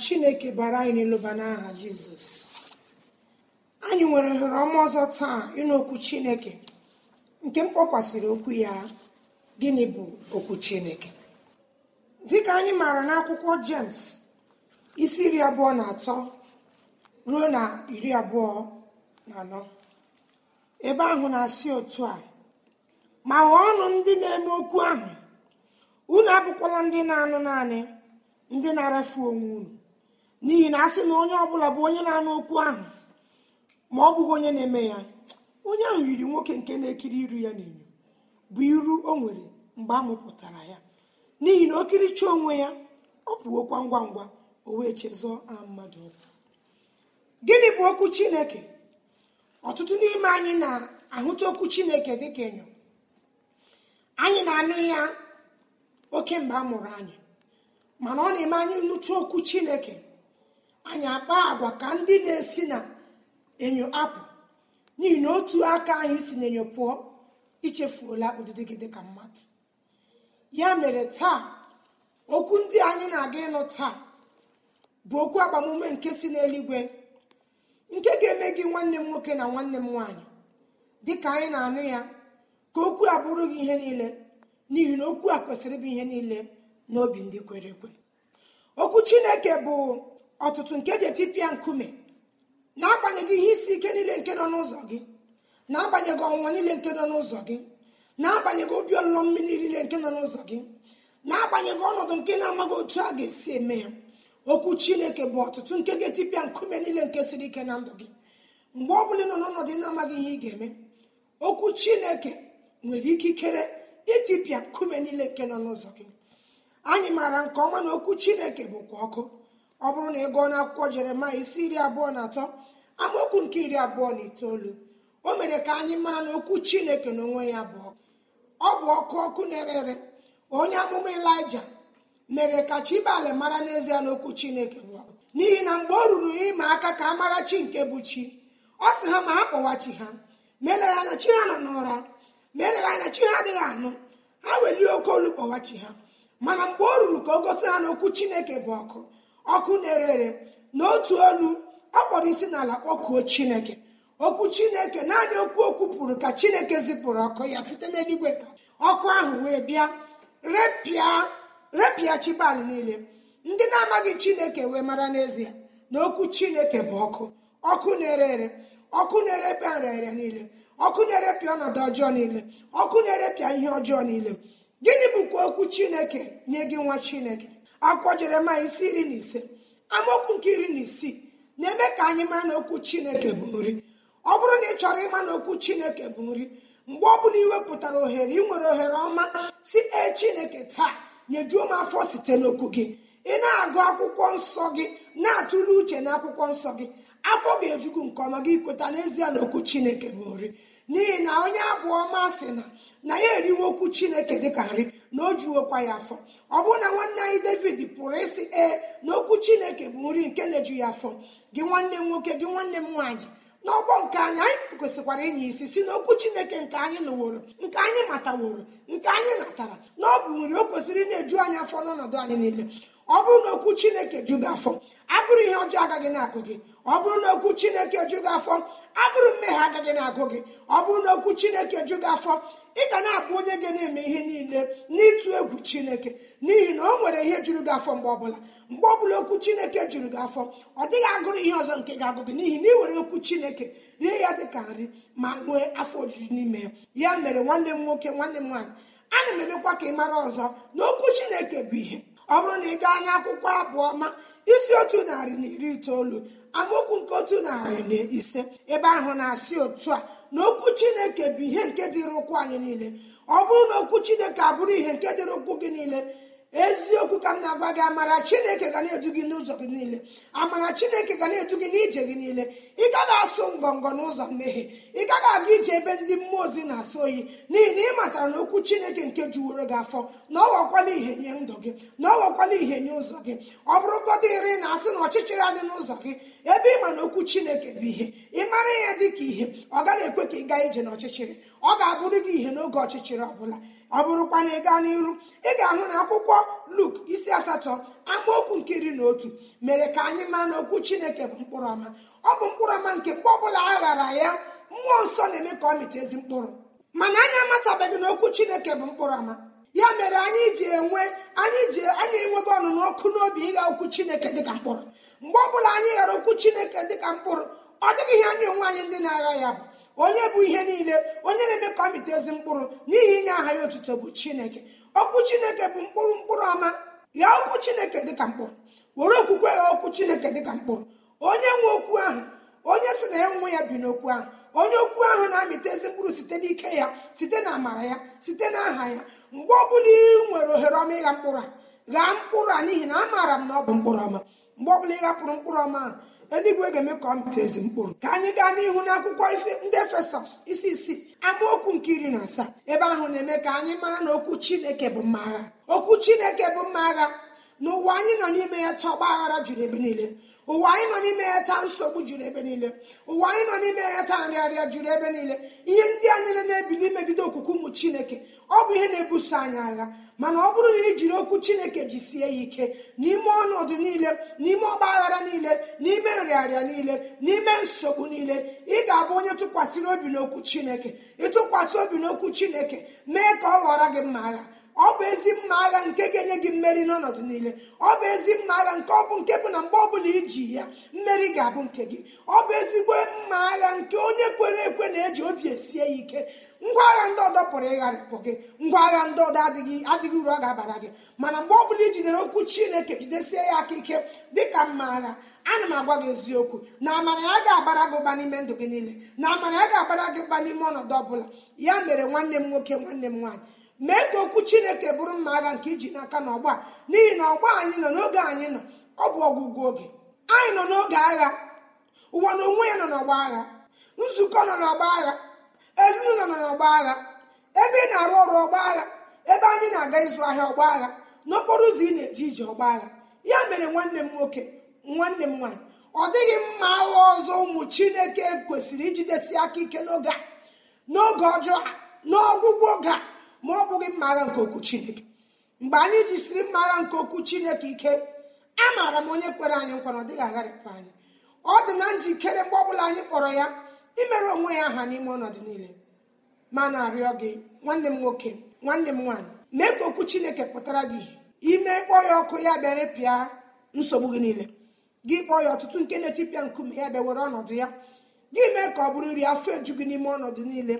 chineke bara anyị n'elụba n'aha anyị nwere ohere ọma ọzọ taa ịnụ okwu chineke nke mkpọkwasịrị okwu ya gịnị bụ okwu chineke dịka anyị maara n'akwụkwọ jems isi iri abụọ na atọ ruo na iri abụọ na anọ ebe ahụ na-asị otu a ma ọnụ ndị na-eme okwu ahụ unu abụkwala ndị na-anụ naanị ndị na-arafu onwe unu n'ihi na a sị na onye ọbụla bụ onye na-anụ okwu ahụ ma ọ bụghị onye na-eme ya onye ahụ yiri nwoke nke na-ekiri iru ya n'enyo bụ iru o nwere mgbe a mụpụtara ya n'ihi na okiricha onwe ya ọ pụokwa ngwa ngwa o wee chezọọ mmadụ ọbụ gịnị bụ okwu chineke ọtụtụ n'ime anyị na-ahụta okwu chineke dị ka enyo anyị na-anụ ya oke mgbe a mụrụ anyị mana ọ na-eme anyị nnụtụ okwu chineke anyị akpa agwa ka ndị na-esi na enyo apụ n'ihi na otu aka anyị si na enyo pụọ ichefuola ụdịdị gị dịka mmadụ ya mere taa okwu ndị anyị na-aga ịnụ taa bụ okwu agbamume nke si n'eluigwe nke ga-eme gị nwanne m nwoke na nwanne m nwaanyị ka anyị na-anụ ya ka okwu a bụrụ gị ihe niile n'ihi na okwu a kwesịrị ịbụ ihe niile n'obi ndị kwere ekwe okwu chineke bụ ọtụtụ nke ji etipịa nkume na-agbanyeghị ihe isi ike niile nke nọ n'ụzọ gị na-agbanyeghị ọnwụnwa niile nke nọ n'ụzọ gị na-agbanyeghị obi ọlụlọ mmiri niile nke nọ n'ụzọ gị na-agbanyeghị ọnọdụ nke na-amaghị otu a ga-esi eme ya okwu chineke bụ ọtụtụ nke ga-etipịa nkume niile nke siri ike na ndụ gị mgbe ọ bụla ị nọ n'ọnọdụ na-amaghị ihe ị ga-eme okwu chineke nwere ikikere itipịa nkume niile nke nọ n'ụzọ gị anyị maara nke ọma na okwu chineke bụkwa ọkụ ọ bụrụ na ị gụọ n'akwụkwọ jeremaya isi iri abụọ na atọ amaokwu nke iri abụọ na itoolu o mere ka anyị mara na okwu chineke n'onwe ya bụ ọ bụ ọkụ ọkụ na-ere ere onye amụma elija mere ka chibale mara n'ezie n'okwu chineke bụ n'ihi na mgbe o ruru ịma aka ka a mara chi nke bụ chi ọ sị ha ma ha kpọwa chi ha meeleghị anya chi ha nọ n'ụra meeleghị anya chi ha adịghị anụ ha welie oke olu kpọwa chi ha mana mgbe o ruru ka o gosi ha n'okwu chineke bụ ọkụ ọkụ na-ere ere na otu olu ọ kpọrọ isi n'ala kpọkuo chineke okwu chineke naanị okwu okwu pụrụ ka chineke zipụrụ ọkụ ya site n'eluigwe ka ọkụ ahụ wee bịa repịa chibali niile ndị na-amaghị chineke wee mara n'ezie na okwu chineke bụ ọkụ ọkụ na-ere ere ọkụ na-erepịa nrịarịa niile ọkụ na-erepịa ọnọdụ ọjọọ niile ọkụ na-erepịa ihe ọjọọ niile gịnị bụkwa okwu chineke nye gị nwa chineke akwụkwọ jeremaya isi iri na ise amaokwu nke iri na isii na-eme ka anyị maa na okwu chineke bụ nri ọ bụrụ na ị chọrọ ịma na okwu chineke bụ nri mgbe ọ bụla iwepụtara ohere ị nwere ohere ọma si e chineke taa nyejuo m afọ site n'okwu gị ị na-agụ akwụkwọ nsọ gị na-atụle uche na akwụkwọ nsọ gị afọ ga-ejugu nke ọma gị kweta n'ezie na okwu chineke bụ nri n'ihi na onye abụ ọma sị na na ya eriwe okwu chineke ka nri na o jiwokwa ya afọ ọ bụrụ na nwanne anyị david pụrụ ịsị ee na okwu chineke bụ nri nke na-eju ya afọ gị nwanne m nwoke gị nwanne m nwaanyị n'ọgbọ nke anyị anyị kwesịkwara inye isi si na okwu chineke nke anyị nụworo nke anyị mataworo nke anyị natara na ọ bụ nri o kwesịrị na-eju anyị afọ n'ọnọdụ anyị niile ọ bụrụ na okwu chineke ju gị afọ agụrụ ihe ọjọọ agaghị na-agụ gị ọ bụrụ na okwu chineke ju gị afọ agụrụ mmehie agaghị na-agụ gị ọ bụrụ na okwu chineke ju gị afọ ị ga na-abụ onye ga na-eme ihe niile n'ịtụ egwu chineke n'ihi na o nwere ihe jụrụ gị afọ mgbe ọbụla mgbe ọbụla okwu chineke jụrụ gị afọ ọ dịghị agụrụ ihe ọzọ nke ga-agụ gị n'ihi na ị were okwu chineke rie ya dị ka nri ma nwee afọ ojuju n'ime ya ya mere nwanne m nwoke nwanne m nwaanyị ana m emekwa ka ị mara ọzọ na okwu chineke bụ ihe ọ bụrụ na ị gaa akwụkwọ abụọ ma isi otu narị na iri itoolu amaokwu nke otu narị na ise ebe ahụ na-asị otu a na okwu chineke bụ ihe nke dịrị ụkwụ anyị niile ọ bụrụ na okwu chineke abụrụ ihe nke dịrị ụkwụ gị niile eziokwu ka m na-agwa gị amara chineke ga na-edu gị n'ụzọ gị niile amara chineke ga na-edu gị n'ije gị niile ị gaghị asụ ngọngọ n'ụzọ mmehie ị gaghị aga ije ebe ndị mmụọ ozi na-asụ oyi n'ihi na ị matara na okwu chineke nke juworo gị afọ na ọ wakwala ihe nye ndụ gị na ọ wakwala ihe nye ụzọ gị ọ bụrụ godịrị na asị na ọchịchịrị adị n'ụzọ gị ebe ị ma na okwu chineke bụ ihe ị mara ihe dị ka ihe ọ gaghị ekwe ka ị gaa ije n'ọchịchịrị ọ ga-abụrụ gị ihe n'oge ọchịchịrị ọ bụla ọ bụrụkwa na ị gaa n'iru ị ga-ahụ na akwụkwọ luk isi asatọ amaokwu nke iri na otu mere ka anyị maa na okwu chineke bụ mkpụrụ ọma ọ bụ mkpụrụ ọma nke mgbe ọbụla a ghara ya mmụọ nsọ na-eme ka ọ mịta ezi mkpụrụ mana anyị amatabeghị na okwu chineke bụ mkpụrụ ọma ya mere anyị ji enwe anyị ji anyị enwego ọnụnụ ọkụ n'obi ịgha okwu chineke dịka mkpụrụ mgbe ọbụla anyị ghara okwu chineke dịka mkpụrụ ọ dịghị ihe anyị onwe anyị ndị na-agha ya bụ onye bụ ihe niile onye na-eme ka ọ mịta ezi mkpụrụ n'ihi inye aha ya otuto bụ chineke okwu chineke bụ mkpụrụ mkpụrụ ọma ya okwu chineke dịka mkpụrụ were okwukwe ya okwu chineke dịka mkpụrụ onye nwe okwu ahụ onye sị na ya nwe ya bi n'okwu ahụ onye okwu ahụ na-amịta ezi mkpụrụ site n'ike ya site na amara ya site na aha ya mgbe ọbụla ị nwere ohere ọma ịgha mkpụrụ a ghaa mkpụrụ a n'ihi na amaara m na ọ bụ mkpụrụ ọma mgbe ọbụla ị hapụrụ mkpụrụ ọma ahụ eluigwe ga-eme ka ọ mịta ezi mkpụrụ ka anyị gaa n'ihu n'akwụkwọ ndị efesọs isi isii amaokwu nke iri na asaa ebe ahụ na-eme ka anyị mara na okwu chineke bụ mma agha okwu chineke bụ mma agha n'ụwa anyị nọ n'ime ya tọgba aghara juru ebe niile ụwa anyị nọ n'ime ya taa nsogbu juru ebe niile ụwa anyị nọ n'ime ya taa nrịarịa juru ebe niile ihe ndị a anyị na-ebili imegide okwukwe ụmụ chineke ọ bụ ihe na-ebuso anyị agha mana ọ bụrụ na ijiri okwu chineke jisie ya ike n'ime ọnọdụ niile n'ime ọgba aghara niile n'ime nrịarịa niile n'ime nsogbu niile ị ga-abụ onye tụkwasịrị obi n'okwu chineke ịtụkwasị obi n'okwu chineke mee ka ọ ghọrọ gị mma agha ọ bụ ezi mma agha nke ga-enye gị mmeri n'ọnọdụ niile ọ bụ ezi mma agha nke ọ bụ nke bụ na mgbe ọbụla iji ya mmeri ga-abụ nke gị ọ bụ ezigbo mma agha nke onye kwere ekwe na-eji obi esie ya ike ngwa agha ndị ọdọ pụrụ ịgharịpụ gị ngwa agha ndị ọdọ adịghị adịghị uru ọ ga-abara gị mana mgbe ọ bụla i jidere okwu chineke jidesie ya aka ike dịka mma agha ana m agwa gị eziokwu na amara ya ga-abara gị ụba n'ime ndụ gị niile na amara ya ga-abara gị ụba n'ime ọnọdụ ọbụla ya mere nwanne m nwoke nwanne m nwaanyị mee ka okwu chineke bụrụ mma agha nke iji n'aka n'ọgba n'ihi na ọgba anyị nọ n'oge anyị nọ ọ bụ ọgwụgwụ oge anyị nọ n'oge agha ụwa na onwe ya nọ n'ọgba agha nzukọ nọ n'ọgba agha ezinụlọ nọ n'ọgba agha ebe ị na-arụ ọrụ ọgba agha ebe anyị na-aga ịzụ ahịa ọgba agha n'okporo ụzọ ị na-eji ije ọgba agha ya mere nwanne m nwoke nwanne m nwaanyị ọ dịghị mma agha ọzọ ụmụ chineke kwesịrị ijidesi aka ike n'oge a n'oge ọjọọ a n'ọgwụgwụ oge a ma ọ bụghị mma agha nke okwu chineke mgbe anyị jisiri mma agha nke okwu chineke ike amaara m onye kwere anyị nkwa na ọ dịghị agharịpụ anyị ọ dị na njikere mgbe ọ bụla anyị kpọrọ ya imere onwe ya aha n'ime ọnọdụ niile ma na-arịọ gị nwanne m nwoke nwanne m nwaanyị mee ka okwu chineke pụtara gị ime kpọọ ya ọkụ ya bịa repịa nsogbu gị niile gị kpọọ ya ọtụtụ nke na-etipịa nkume ya bịa were ọnọdụ ya gị mee ka ọ bụrụ nri afọ eju gị n'ime ọnọdụ niile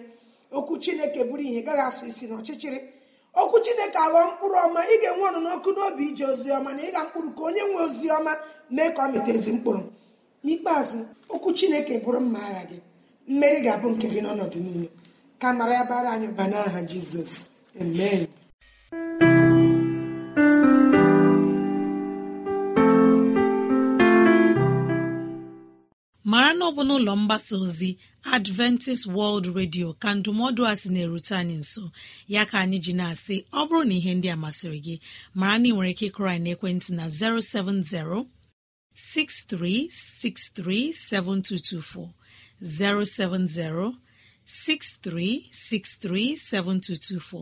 okwu chineke bụrụ ihe gaghị asụ isi n'ọchịchịrị okwu chineke aghọọ mkpụrụ ọma ị ga-enwe ọnụ n'ọkụ n'obi ije ozi ọma na ịga mkpụrụ ka onye nwe ozi ọma mee ka ọ ezi mkpụrụ n'ikpeazụ okwu chineke bụrụ mma agha gị mmeri ga-abụ nke gị n'ọnọdụ niile ka mara ya bara anyị ba n'aha jizọs amen onye ọbụla n'ụlọ mgbasa ozi adventist world radio ka ndụmọdụ a sị na-erute anyị nso ya ka anyị ji na-asị ọ bụrụ na ihe ndị a masịrị gị mara na ị nwere ike ịkụrọ anyị n'ekwentị na 070 6363 7224 070 7224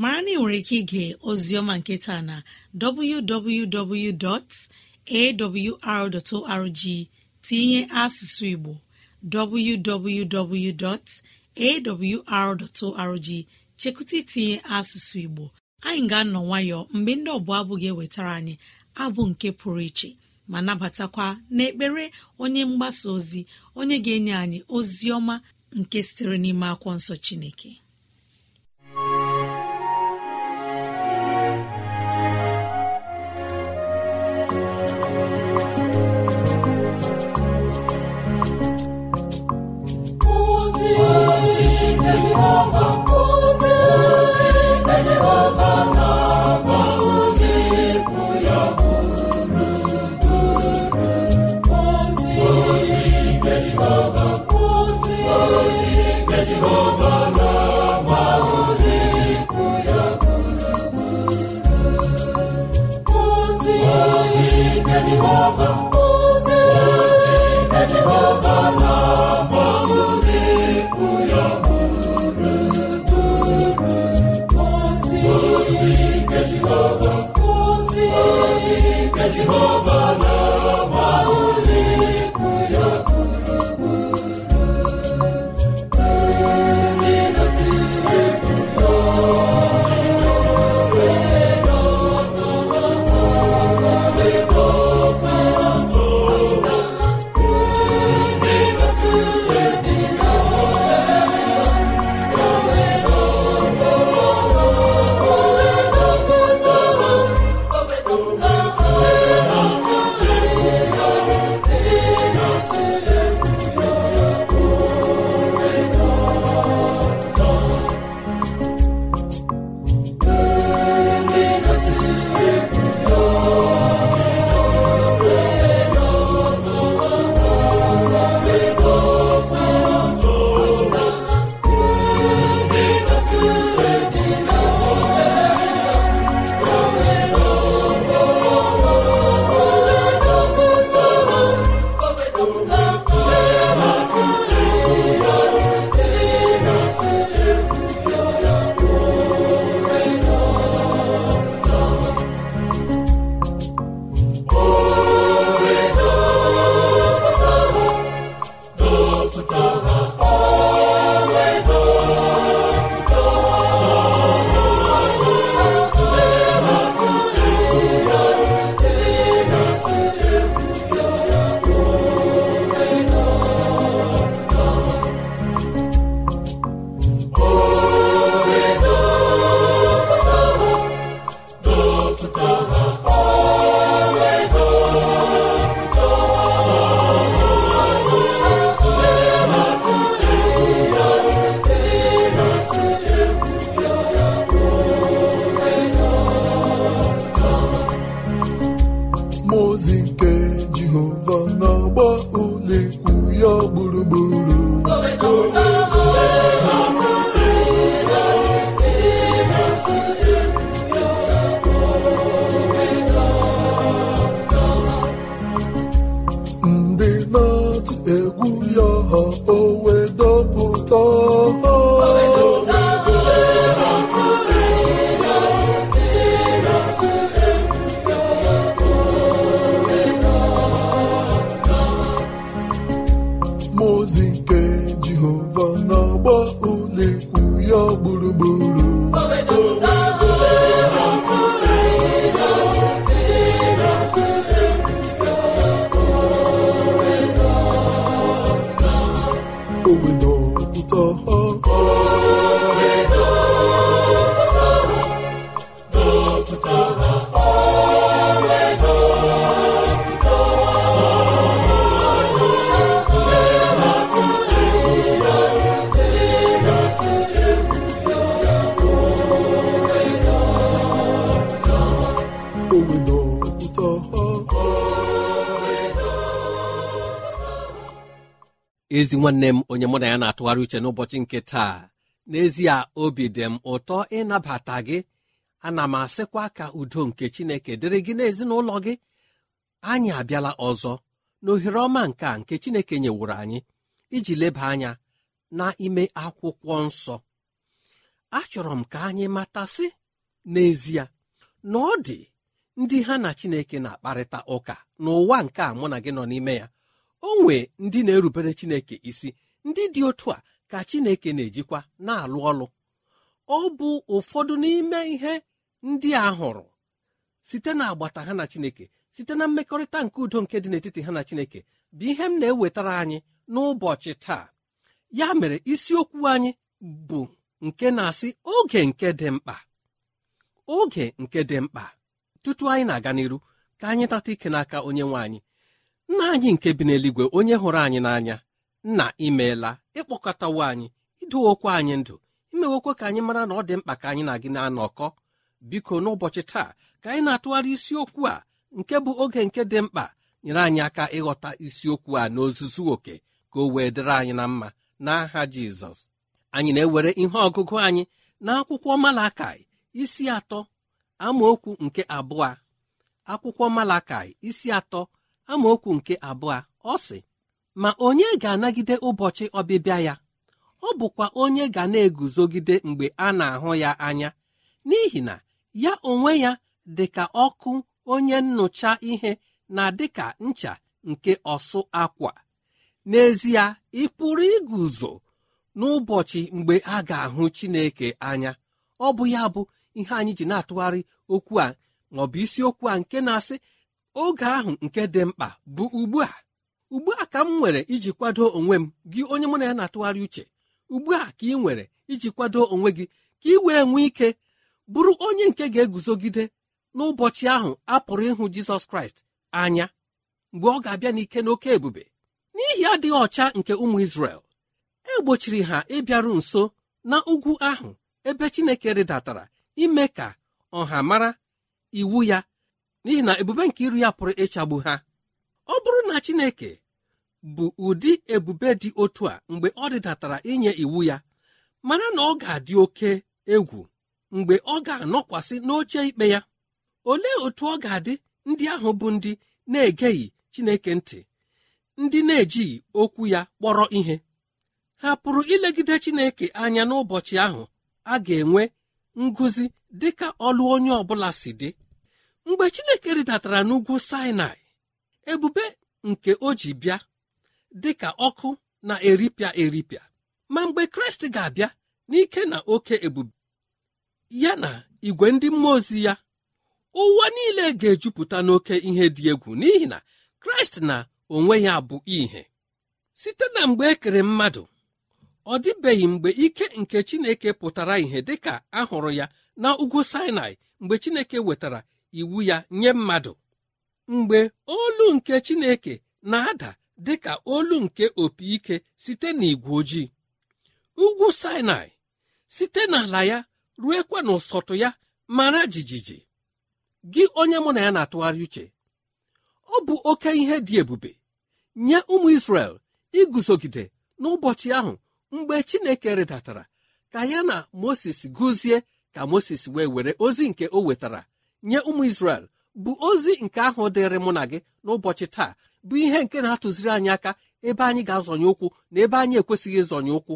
mara na ị nwere ike ige oziọma nketa na www.awr.org tinye asụsụ igbo www.awr.org chekụta itinye asụsụ igbo anyị ga-anọ nwayọọ mgbe ndị ọbụla abụ ga-ewetara anyị abụ nke pụrụ iche ma nabatakwa n'ekpere onye mgbasa ozi onye ga-enye anyị ozi ọma nke sitere n'ime akwụkwọ nsọ chineke ozizi ezi nwanne m onye mụ na ya na-atụgharị uche n'ụbọchị nke taa n'ezie obi dị m ụtọ ịnabata gị ana m asịkwa ka udo nke chineke dịrị gị n'ezinụlọ gị anyị abịala ọzọ n'ohere ọma nke a nke chineke nyewuru anyị iji leba anya n'ime akwụkwọ nsọ achọrọ m ka anyị matasị n'ezie na ọ dị ndị ha na chineke na-akparịta ụka n'ụwa nke a mụ na gị nọ n'ime ya o nwee ndị na-erubere chineke isi ndị dị otu a ka chineke na-ejikwa na-alụ ọlụ ọ bụ ụfọdụ n'ime ihe ndị a hụrụ site na agbata ha na chineke site na mmekọrịta nke udo nke dị n'etiti ha na chineke bụ ihe m na-ewetara anyị n'ụbọchị taa ya mere isiokwu anyị bụ nke na-asị oge nke dị mkpa oge nke dị mkpa tutu anyị na-aga n'iru ka anyị tata ike n'aka onye nwe anyị nna anyị nke bi n'eluigwe onye hụrụ anyị n'anya nna imeela ịkpọkọtawo anyị idowokwa anyị ndụ imewokwa ka anyị mara na ọ dị mkpa ka anyị na gị na-anọkọ biko n'ụbọchị taa ka anyị na-atụgharị isiokwu a nke bụ oge nke dị mkpa nyere anyị aka ịghọta isiokwu a n'ozuzu oke ka o wee dịrị anyị na mma n'aha jizọs anyị na-ewere ihe ọgụgụ anyị akwụkwọ malakai isi atọ amaokwu nke abụọ akwụkwọ malakai isi atọ amaokwu nke abụọ ọ sị ma onye ga-anagide ụbọchị ọbịbịa ya ọ bụkwa onye ga na-eguzogide mgbe a na-ahụ ya anya n'ihi na ya onwe ya dị ka ọkụ onye nnụcha ihe na dịka ncha nke ọsụ akwa n'ezie ị pụrụ iguzo n'ụbọchị mgbe a ga-ahụ Chineke anya ọ bụ ya bụ ihe anyị ji na-atụgharị okwu a ma bụ isiokwu a nke na-asị oge ahụ nke dị mkpa bụ ugbu a ugbu a ka m nwere iji kwado onwe m gị onye mụ na ya na-atụgharị uche ugbu a ka ị nwere iji kwado onwe gị ka ị wee nwee ike bụrụ onye nke ga-eguzogide n'ụbọchị ahụ a pụrụ ịhụ Jizọs Kraịst anya mgbe ọ ga-abịa n'ike n'oke ebube n'ihi adịghị ọcha nke ụmụ Izrel e gbochiri ha ịbịaru nso na ugwu ahụ ebe Chineke rịdatara ime ka ọha mara iwu ya n'ihi na ebube nke iru ya pụrụ ịchagbu ha ọ bụrụ na Chineke bụ ụdị ebube dị otu a mgbe ọ dịdatara inye iwu ya mana na ọ ga-adị oke egwu mgbe ọ ga-anọkwasị n'oche ikpe ya olee otu ọ ga-adị ndị ahụ bụ ndị na-egeghị Chineke ntị ndị na-ejighị okwu ya kpọrọ ihe ha pụrụ ilegide Chineke anya n'ụbọchị ahụ a ga-enwe ngụzi dịka ọlụ onye ọ bụla si dị mgbe chineke rịdatara n'ugwu sinai ebube nke o ji bịa dị ka ọkụ na-eripịa eripịa ma mgbe kraịst ga-abịa n'ike na oke ebube ya na igwe ndị mmụọ ozi ya ụwa niile ga-ejupụta n'oke ihe dị egwu n'ihi na kraịst na onwe ya bụ ihe site na mgbe ekere mmadụ ọ dịbeghị mgbe ike nke chineke pụtara ihe dịka a hụrụ ya na ugwu sinai mgbe chineke wetara iwu ya nye mmadụ mgbe olu nke chineke na-ada dị ka olu nke opi ike site n'igwe ojii ugwu sinai site n'ala ya ruekwa n'ụsọtụ ya mara jijiji gị onye mụ na ya na-atụgharị uche ọ bụ oke ihe dị ebube nye ụmụ Israel iguzogide n'ụbọchị ahụ mgbe Chineke rịdatara ka ya na Moses gụzie ka Moses wee were ozi nke o wetara nye ụmụ isrel bụ ozi nke ahụ dịrị mụ na gị n'ụbọchị taa bụ ihe nke na-atụziri anyị aka ebe anyị ga-azọnye ụkwụ na ebe anyị ekwesịghị ịzọnye ụkwụ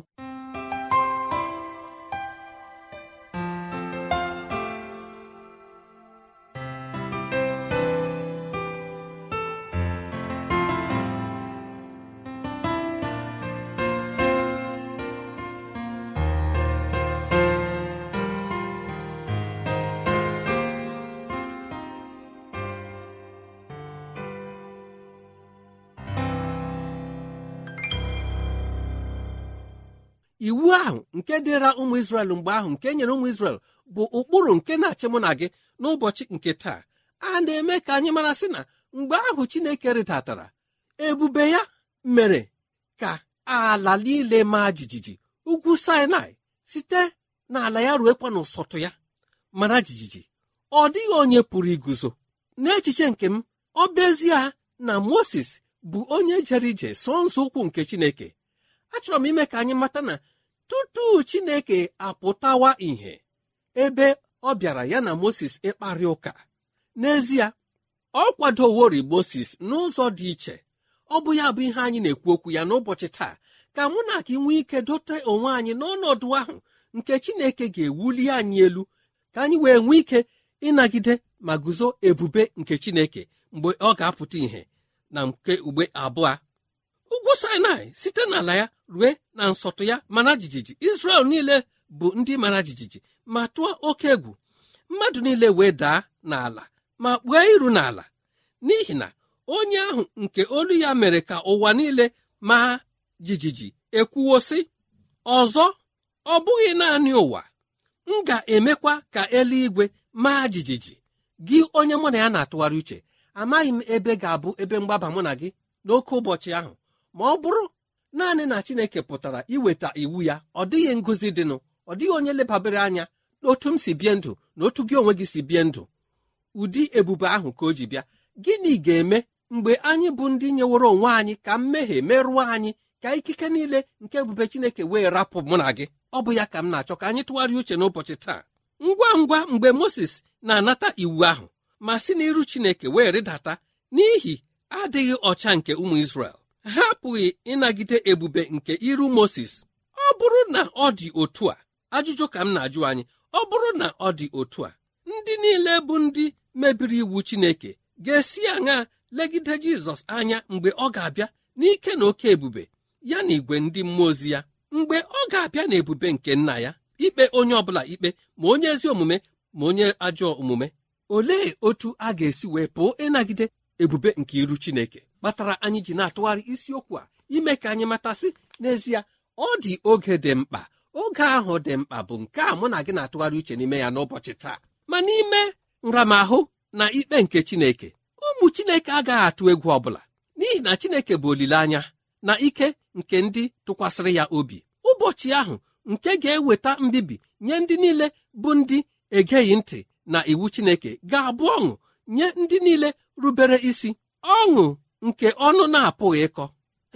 iwu ahụ nke dịra ụmụ Izrel mgbe ahụ nke nyere ụmụ Izrel bụ ụkpụrụ nke na-achị mụ na gị n'ụbọchị nke taa a na-eme ka anyị mara sị na mgbe ahụ Chineke rịdatara ebube ya mere ka ala niile maa jijiji ugwu Sinai site n'ala ya ruekwa n'ụsọtụ ya mara jijiji ọ dịghị onye pụrụ iguzo n'echiche nke m ọ na Moses bụ onye jere ije so nzọ ụkwụ nke Chineke achọrọ m ime ka anyị mata na tutu chineke apụtawa ìhè ebe ọ bịara ya na moses ịkparị ụka n'ezie ọ kwadowori moses n'ụzọ dị iche ọ bụ ya bụ ihe anyị na-ekwu okwu ya n'ụbọchị taa ka mụ na gị nwee ike dote onwe anyị n'ọnọdụ ahụ nke chineke ga-ewuli anyị elu ka anyị wee nwee ike ịnagide ma guzo ebube nke chineke mgbe ọ ga-apụta ìhè na nke ugbe abụọ ugwu sinai site n'ala ya rue na nsọtụ ya mara jijiji israel niile bụ ndị mara jijiji ma tụọ oke egwu mmadụ niile wee daa n'ala ma kpuo iru n'ala n'ihi na onye ahụ nke olu ya mere ka ụwa niile ma jijiji ekwuwo sị ọzọ ọ bụghị naanị ụwa m ga-emekwa ka eluigwe maa jijiji gị onye mụ na ya na-atụgharị uche amaghị m ebe ga-abụ ebe mgbaba mụ na gị n'oke ụbọchị ahụ ma ọ bụrụ naanị na chineke pụtara iweta iwu ya ọ dịghị ngozi dịnụ ọ dịghị onye lebabere anya n'otu m si bie ndụ na otu gị onwe gị si bie ndụ ụdị ebube ahụ ka o ji bịa gịnị ga-eme mgbe anyị bụ ndị nyeworo onwe anyị ka mmehie merụọ anyị ka ikike niile nke ebube chineke wee rapụ mụ na gị ọ bụ ya ka m na-achọ ka anyị tụgharịa uche n'ụbọchị taa ngwa ngwa mgbe moses na-anata iwu ahụ ma si n'iru chineke wee rịdata n'ihi adịghị ọcha nke ụmụ isrel hapụghị apụghị ịnagide ebube nke iru Moses ọ bụrụ na ọ dị otu a ajụjụ ka m na-ajụ anyị ọ bụrụ na ọ dị otu a ndị niile bụ ndị mebiri iwu Chineke ga-esi aṅa legide Jizọs anya mgbe ọ ga-abịa n'ike na oke ebube ya na igwe ndị mmụọ ozi ya mgbe ọ ga-abịa na ebube nke nna ya ikpe onye ọbụla ikpe ma onye ezi omume ma onye ajọ omume olee otu a ga-esi wee pụọ ịnagide ebube nke iru Chineke kpatara anyị ji na-atụgharị isiokwu a ime ka anyị matasị n'ezie ọ dị oge dị mkpa oge ahụ dị mkpa bụ nke a mụ na gị na-atụgharị uche n'ime ya n'ụbọchị taa ma n'ime nramahụ na ikpe nke Chineke ụmụ Chineke agaghị atụ egwu ọbụla n'ihi na Chineke bụ olileanya na ike nke ndị tụkwasịrị ya obi ụbọchị ahụ nke ga-eweta mbibi nye ndị niile bụ ndị egeghị ntị na iwu Chineke ga-abụ ọṅụ nye ndị niile rubere isi ọṅụ nke ọnụ na-apụghị ịkọ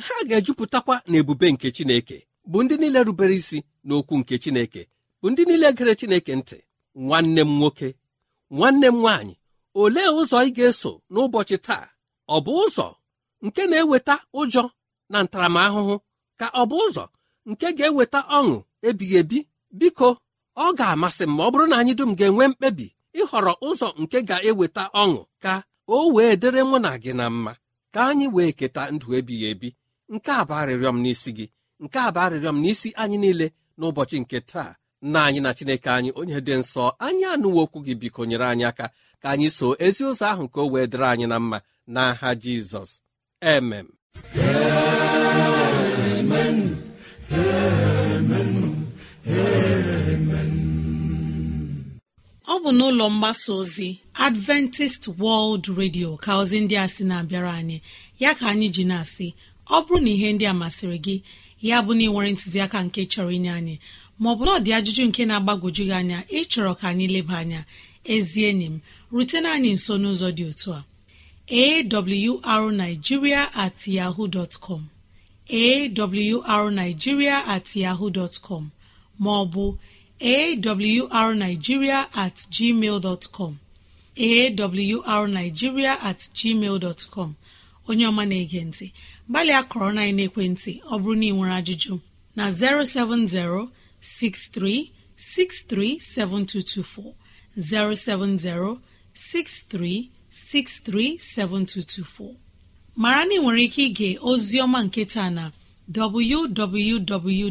ha ga-ejupụtakwa na ebube nke Chineke bụ ndị niile rubere isi n'okwu nke Chineke bụ ndị niile gere Chineke ntị nwanne m nwoke nwanne m nwaanyị olee ụzọ ị ga-eso n'ụbọchị taa ọ bụ ụzọ nke na-eweta ụjọ na ntaramahụhụ ka ọ bụ ụzọ nke ga-eweta ọṅụ ebighị ebi biko ọ ga-amasị m ma ọ bụrụ na anyị dum ga-enwe mkpebi ịhọrọ ụzọ nke ga-eweta ọṅụ ka o wee dịrị mụ na gị na mma ka anyị wee keta ndụ ebighị ebi nke a bụ arịrịọ m n'isi gị nke a bụ arịrịọ m n'isi anyị niile n'ụbọchị nke taa nna anyị na chineke anyị onye dị nsọ anyị anụwo okwu gị biko nyere anyị aka ka anyị so ezi ụzọ ahụ ka o wee dịrị anyị na mma n'aha jizọs emem ọ bụ n'ụlọ mgbasa ozi adventist world radio ka ozi ndị a sị na-abịara anyị ya ka anyị ji na-asị ọ bụrụ na ihe ndị a masịrị gị ya bụ na ịnwere ntụziaka nke chọrọ inye anyị maọbụ na ọ dị ajụjụ nke na-agbagwoju gị anya ịchọrọ ka anyị leba anya ezi enyi m rutena anyị nso n'ụzọ dị otu a arigiria at yahoo dot com at yaho dot com maọbụ awrnigeria at gmail awrnigeria at gmail dot onye ọma na-ege ntị gbalịa kọrọ na ekwentị ọ bụrụ na ị nwere ajụjụ na 070 6363 7224 070 6363 7224 mara na ị nwere ike ịga ozi ọma nke taa na www.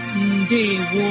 ndewo